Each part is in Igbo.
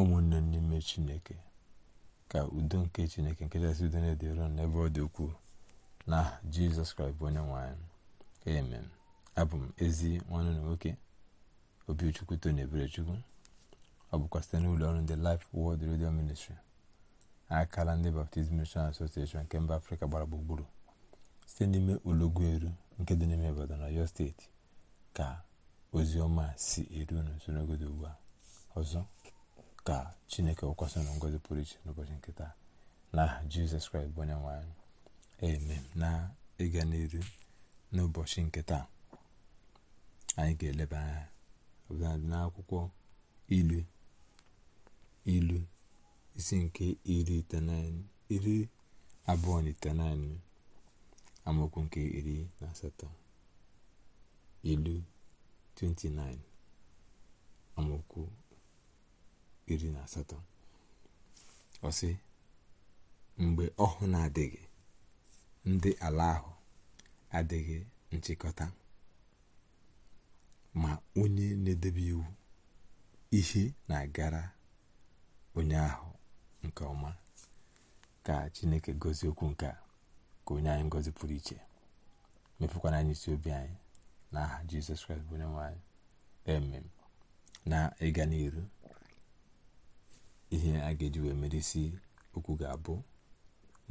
ụmụnne n'ime chineke ka udo nke chineke nke chasị udo na-edere n'ebe ọ dị ukwuu na jizọs kraịst bụ onye nwanyị amen abụ m ezi nwanne na nwoke obichukwu tony eberechukwu ọ bụkwa site n'ụlọ ọrụ ndị Life Word redio Ministry akala ndị baptizim Mission Association nke mba afrịka gbara gburugburu site n'ime eru nke dị n'ime Ibadan na steeti ka ozi ọma si eru unu nso ugbu a ọzọ ka chineke wụkwasị ngozi pụrụ iche n'ụbọchị nke taa na jizọs kraịst bụ onye nwe anyị eme na ịga n'iru n'ụbọchị nke taa anyị ga-eleba anya ọbụladị n'akwụkwọ ilu ilu isi nke iri iri abụọ na itenaịnị amaokwu nke iri na asatọ ilu 29 amaokwu iri na asatọ ọsị mgbe ọhụụ na-adịghị ndị ala ahụ adịghị nchịkọta ma onye na-edebe iwu ihe na-agara onye ahụ nke ọma ka chineke gozie okwu nke a ka onye anyị ngozi pụrụ iche mepekwana anyị isi obi anyị n'aha jizọs kraịst bụ onye nwe anyị emem na ịga n'iru ihe a ga-eji wee merisi okwu ga-abụ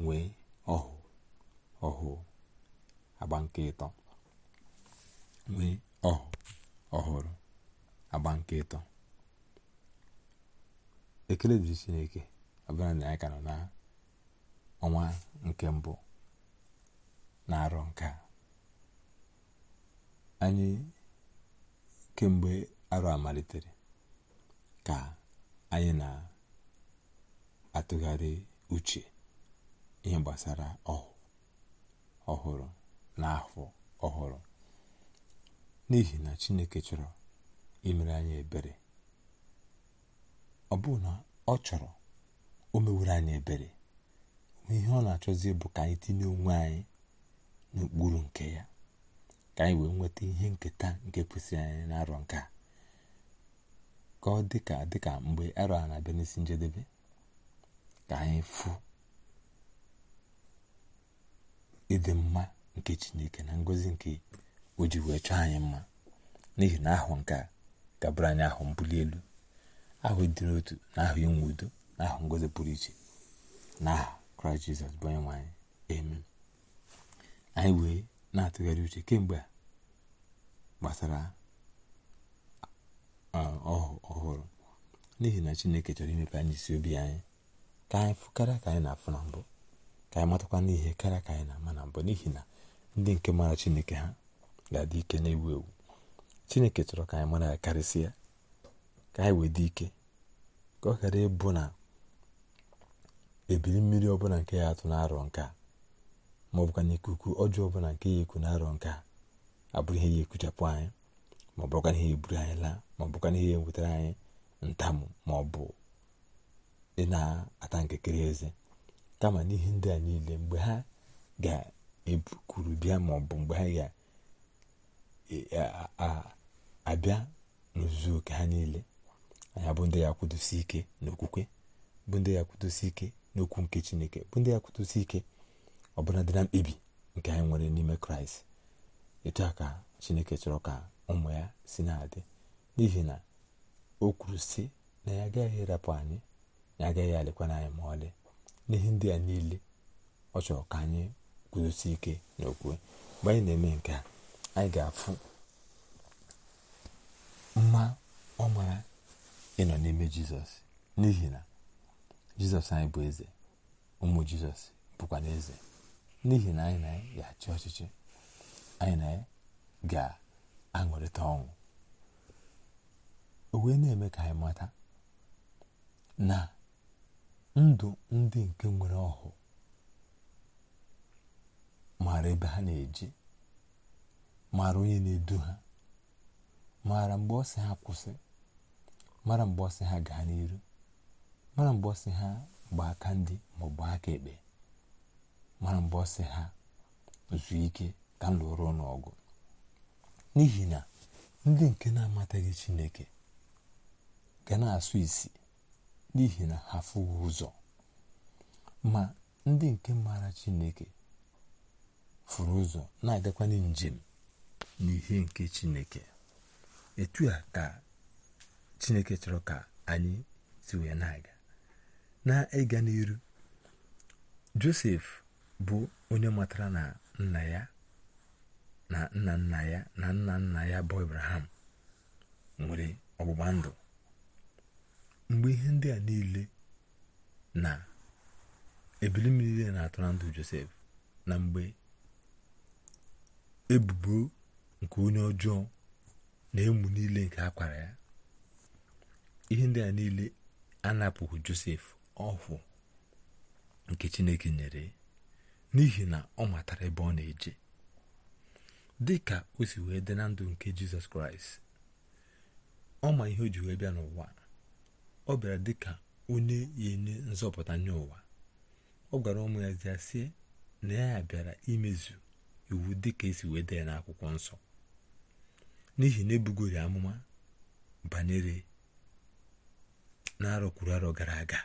nwee ọhụụ ọhụụ agba nke ịtọ nwee ọhụụ ọhụrụ agba nke ịtọ ekele dịrị chineke ọbụla na anyị ka nọ na ọnwa nke mbụ na-arọ nke a anyị kemgbe arọ a malitere ka anyị na atụgharị uche ihe gbasara ọhụrụ na ọhụrụ n'ihi na Chineke chọrọ imere anyị ebere ọ bụ na ọ chọrọ o mewuru anyị ebere ihe ọ na-achọzi bụ ka anyị tinye onwe anyị n'okpuru nke ya ka anyị wee nweta ihe nketa nke kwesịrị anyị n'arọ nke a ka ọ dịka dịka mgbe arọ a na-abịa n'isi njedebe ka anyị fụ ịdị mma nke chineke na ngọzi nke o ji wee chọọ anyị mma n'ihi na ahụ nke a gabara anyị ahụ mbuli elu ahụ dịrị otu na ahụ inwe udo na ahụ ngọzi pụrụ iche na aha kraịst jizọs bụ onye eme. anyị anyị wee na-atụgharị uche kemgbe a gbasara uh, ọhụrụ n'ihi na chineke chọrọ imepe anyị isi obi anyị ka anyị fụ karịa ka anyị na-afụ na mbụ ka anyị matakwa n'ihe karịa ka anyị na-ama na mbụ n'ihi na ndị nke mara chineke ha ga-adị ike na-ewu ewu chineke chọrọ ka anyị mara ya karịsịa ka anyị wee dị ike ka ọ ghara ịbụ na ebili mmiri ọbụla nke ya atụ na-arọ nke a ma ọ bụkwa na ikuku ọjọọ ọbụla nke ya ekwu na-arọ nke a abụrụ ihe ya ekuchapụ anyị ma ọ bụkwa ihe egburu anyị laa ma ọ bụkwa na ihe anyị ntamụ ma ọ bụ ị na-ata nkekere eze kama n'ihi ndị a niile mgbe ha ga-ebukwuru bịa ma ọ bụ mgbe ha ga-abịa e, e, n'ozuzu oke ha niile anyị bụ ndị ya kwudosi ike n'okwukwe bụ ndị ya kwudosi ike n'okwu nke chineke bụ ndị ya kwudosi ike ọbụla dị na mkpebi nke anyị nwere n'ime kraịst etu a ka chineke chọrọ ka ụmụ ya si na n'ihi na o kwuru sị na ya agaghị ịrapụ anyị ya agaghị alekwana anyị ma ọlị n'ihi ndị a niile ọ chọrọ ka anyị guzosi ike n'okwu mgbe anyị na-eme nke a anyị ga-afụ mma ọ mara ịnọ n'ime jizọs n'ihi na jizọs anyị bụ eze ụmụ jizọs bụkwa na eze n'ihi na anyị na achị ọchịchị anyị na ga-aṅụrịta ọṅụ o na-eme ka anyị mata na ndụ ndị nke nwere ọhụụ. maara ebe ha na eji maara onye na-edu ha maara mgbe ọ sị ha kwụsị mara mgbe ọ ha gaa n'iru mara mgbe ọ ha gba aka ndị ma ọ bụ aka ekpe mara mgbe ọ ha zuo ike ka m lụrụ n'ọgụ n'ihi na ndị nke na-amataghị Chineke ga na-asụ isi n'ihi na ha fụghị ụzọ ma ndị nke maara chineke fụrụ ụzọ na-agakwanye njem n'ihe nke chineke etu a ka chineke chọrọ ka anyị si wee na-aga na-ịga n'iru josef bụ onye matara na nna ya na nna nna ya na nna nna ya bụ ibrahim nwere ọgbụgba ndụ mgbe ihe ndị a niile na ebili m niile na-atọ na ndụ josef na mgbe ebubo nke onye ọjọọ na emu niile nke akwara ya ihe ndị a niile anapụghị josef ọhụụ nke chineke nyere n'ihi na ọ matara ebe ọ na-eje dị ka o si wee dị na ndụ nke jizọs kraịst ọ ma ihe o ji wee bịa n'ụwa ọ bịara dịka onye ya enye nzọpụta nye ụwa ọ gwara ụmụ ya zia sie na ya bịara imezu iwu dịka esi wee dee na akwụkwọ nsọ n'ihi na ebugoro amụma banyere na-arọ kwuru arọ gara aga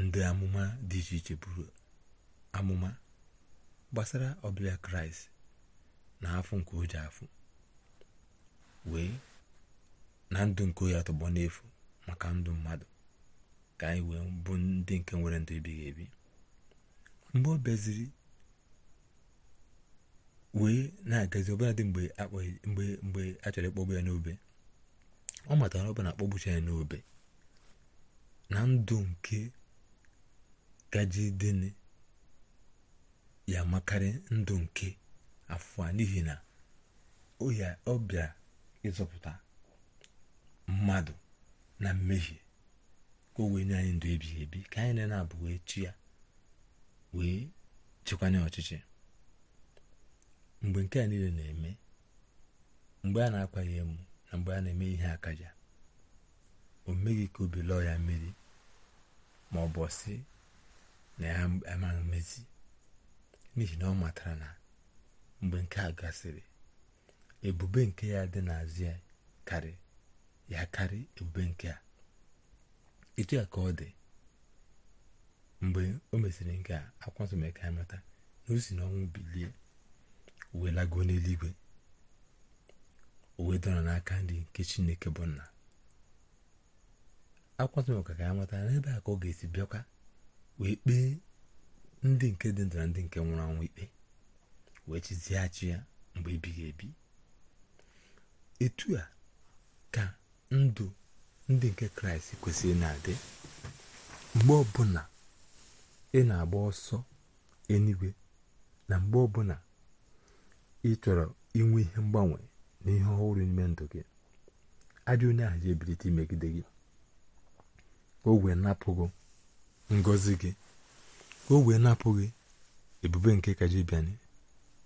ndị amụma dị iche iche buru amụma gbasara ọbịa kraịst na afụ nke o ji afụ wee na ndụ nke oyi atọgbọ n'efu maka ndụ mmadụ ka anyị wee bụ ndị nke nwere ndụ ebighị ebi mgbe ọ bịaziri wee na-agazi dị mgbe a chọrọ ịkpọgbu ya n'obe ọ matara ọ bụ na akpọgbucha ya n'obe na ndụ nke gajideni ya makarị ndụ nke afọ n'ihi na ọ bịa ịzọpụta mmadụ na mmehie ka o wee nye anyị ndụ ebighị ebi ka anyị na-abụ wee chi ya wee chịkwanye ọchịchị mgbe nke a niile na-eme mgbe a na-akwaghị emu na mgbe a na-eme ihe akaja o meghị ka obi lọọ ya mmiri ma ọ bụ sị na ya amaghị mmezi n'ihi na ọ matara na mgbe nke a gasịrị ebube nke ya dị n'azụ ya karịa ya karị ebube nke a etu ya ka ọ dị mgbe o mesịrị nke a akwanso mee ya na o si n'ọnwụ bilie wee lago n'eluigwe o wee dọrọ n'aka ndị nke chineke bụ nna akwanso ka ya mata na ebe a ka ọ ga-esi bịakwa wee kpee ndị nke dị ndụ na ndị nke nwụrụ anwụ ikpe wee chizighachi ya mgbe ebighị ebi etu a ka ndụ ndị nke kraịst kwesịrị na-adị mgbe ọbụla ị na-agba ọsọ eluigwe na mgbe ọbụla ị chọrọ inwe ihe mgbanwe na ihe ọhụrụ n'ime ndụ gị ajọ onye ahụ ji ebilite imegide gị o wee napụghị ngọzi gị o wee napụghị ebube nke kajibiani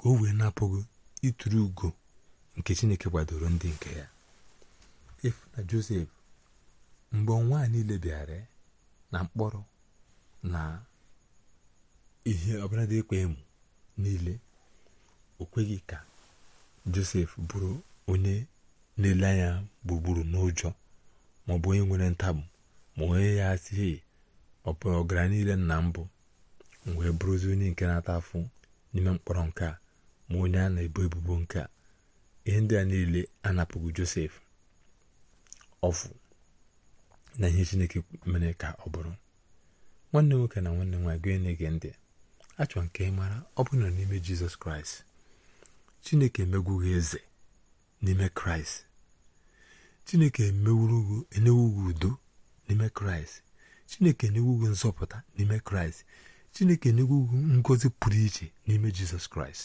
ka o wee napụghị ịtụrụ ugo nke chineke kwadoro ndị nke ya na josef mgbe a niile bịara na mkpọrọ na ihe ọbụladị dị emu niile o kweghị ka josef bụrụ onye na-ele anya gburugburu n'ụjọ maọbụ onye nwere ntamu ma onye ya asịghị ọbụ ọgara niile na mbụ wee bụrụzi onye nke na-ata afụ n'ime mkpọrọ nke ma onye a na-ebo ebubo nke a niile anapụghị josef ọfụ na ihe chineke mere ka ọ bụrụ nwanne nwoke na nwanne nwaanyị gị na-ege ndị achọ nke mara ọ bụ na n'ime jizọs kraịst chineke emegwughị eze n'ime kraịst chineke enewughị udo n'ime kraịst chineke enewughị nzọpụta n'ime kraịst chineke enewughị ngozi pụrụ iche n'ime jizọs kraịst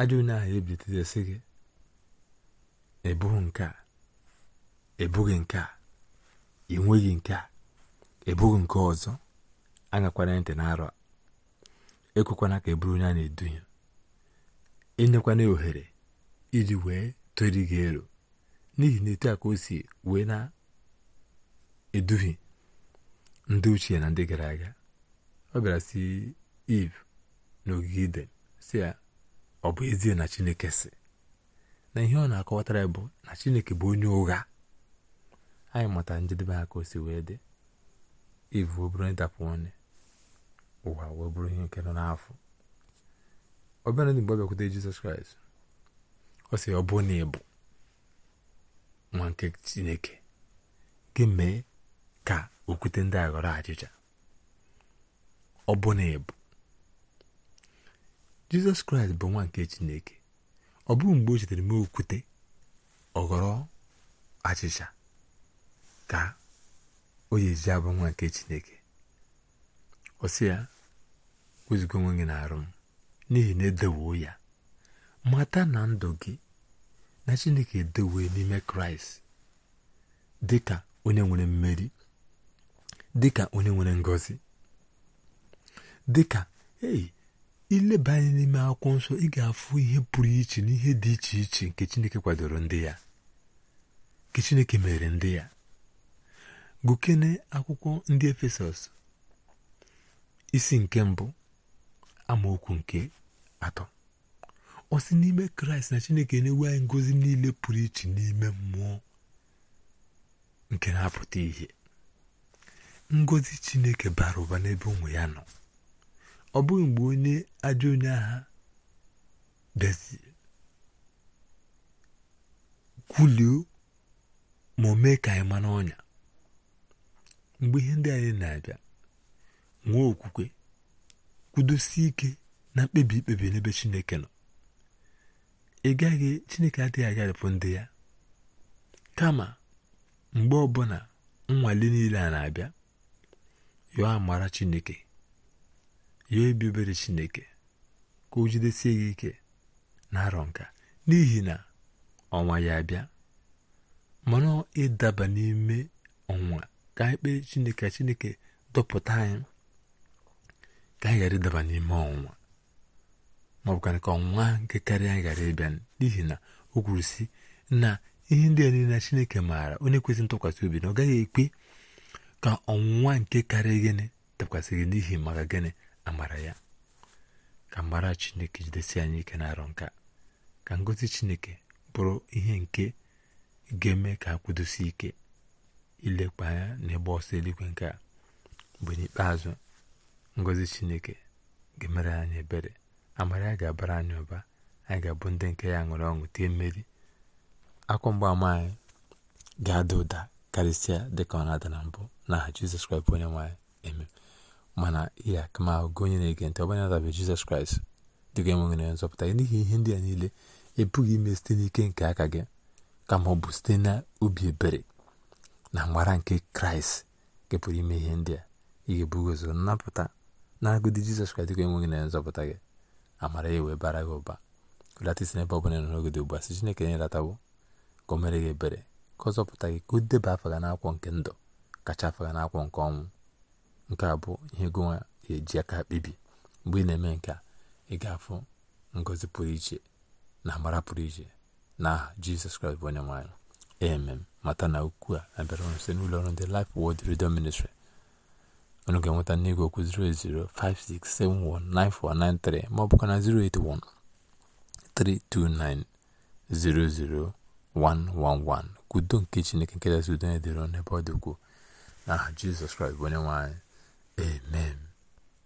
ajọ onye ahụ ebitetesị gị ị nke a ebughị nke a ị nweghị nke a ebughị nke ọzọ aṅakwana ntị na-arọ ekwekwana ka eburu onye a na-eduhie enyekwana ohere iji wee tori gị ero n'ihi na etu a ka o si wee na-eduhie ndị ochie na ndị gara aga ọ bịara si iv n'ogige iden si ya ọ bụ ezie na chineke si na ihe ọ na-akọwatara bụ na chineke bụ onye ụgha anyị mụta njedebe aka osi wee dị ivu wee bụrụ ịdapụ onye ụwa wee bụrụ ihe nke nọ n'afọ ọbịara ndị mgbe ọ bịakwute jizọs kraịst ọ sị ọ bụ na nwa nke chineke gị mee ka okwute ndị a ghọrọ achịcha ọ bụ na jizọs kraịst bụ nwa nke chineke ọ bụghị mgbe o chetere mee okwute ọ ghọrọ achịcha ka o yezi abụ nwa nke chineke ọ sị ya wezuga onwe gị na-arụ m n'ihi na edowoo ya mata na ndụ gị na chineke edewo n'ime kraịst dị ka onye nwere mmeri dị ka onye nwere ngọzi dị ka eyi ileba anya n'ime akwụkwọ nsọ ị ga-afụ ihe pụrụ iche na ihe dị iche iche nke chineke kwadoro ndị ya nke chineke mere ndị ya gụkene akwụkwọ ndị efesọs isi nke mbụ amaokwu nke atọ ọ si n'ime kraịst na chineke na anyị ngozi niile pụrụ iche n'ime mmụọ nke na-apụta ihe ngozi chineke bara ụba n'ebe ụmụ ya nọ ọ bụghị mgbe onye ajọ onye agha dezie kwulio ma o mee ka anyị mana ọnya mgbe ihe ndị anyị na-abịa nwee okwukwe kwudosie ike na mkpebi ikpebi n'ebe chineke nọ ị gaghị chineke adịghị agharịpụ ndị ya kama mgbe ọbụla nnwale niile a na-abịa yọọ amara chineke yọọ ebi obere chineke ka o jidesie gị ike na arọ nka n'ihi na ọnwa ya abịa mana ịdaba n'ime ọnwa ka anyị kpee chineke chineke dọpụta anyị ka anyị ghara ịdaba n'ime ọnwụnwa ma ọ ka ọnwụnwa nke karịa anyị ghara ịbịa n'ihi na o kwuru si na ihe ndị a niile chineke maara onye kwesịrị ntụkwasị obi na ọ gaghị ekpe ka ọnwụnwa nke karịa gịnị dakwasị gị n'ihi maka gịnị amara ya ka mara chineke jidesi anyị ike na-arọ nka ka ngozi chineke bụrụ ihe nke ga-eme ka ha ike ilekwa anya n'ebe ọsọ eluigwe nke a mgbe n'ikpeazụ ngọzi chineke ga-emere anyị ebere amara ya ga-abara anyị ụba anyị ga-abụ ndị nke ya ṅụrụ ọṅụ tie mmeri akwa mgbaama anyị ga-ada ụda karịsịa dịka ọ na-ada na mbụ n'aha jizọs kraịst bụ onye nwaanyị eme mana ya akamahụ gị onye na-ege ntị ọbanye adabe jizọs kraịst dịga enweghị nzọpụta gị n'ihi ihe ndị a niile ebughị ime site n'ike nke aka gị kama ọ bụ site na ubi ebere na mgbara nke kraịst nke ime ihe ndị a ị ga-ebugozo nnapụta na agụdị jizọs kraịst ka enweghị na nzọpụta gị amara ya wee bara gị ụba ụlata isi n'ebe ọbụla nọ n'ogede ugbu a si chineke nyelatawo ka o mere gị ebere ka ọ zọpụta gị ka o deba afa gị n'akwụkwọ nke ndụ kacha faga gị n'akwụkwọ nke ọnwụ nke a bụ ihe gonwa eji aka kpebi mgbe ị na-eme nke a ị ga-afụ ngozi pụrụ iche na amara pụrụ iche na aha jizọs kraịst bụ onye nwaanyị amen mata na ukwu a abịara ọrụ site n'ụlọ ọrụ ndị Life Word Radio Ministry unu ga-enweta n'igwe okwu 08056719493 ma ọ na 08132900111 kwudo nke Chineke nke kasị udo na-edere n'ebe ọ dị ukwuu n'aha Jizọs Kraịst bụ onye nwanyị anyị amen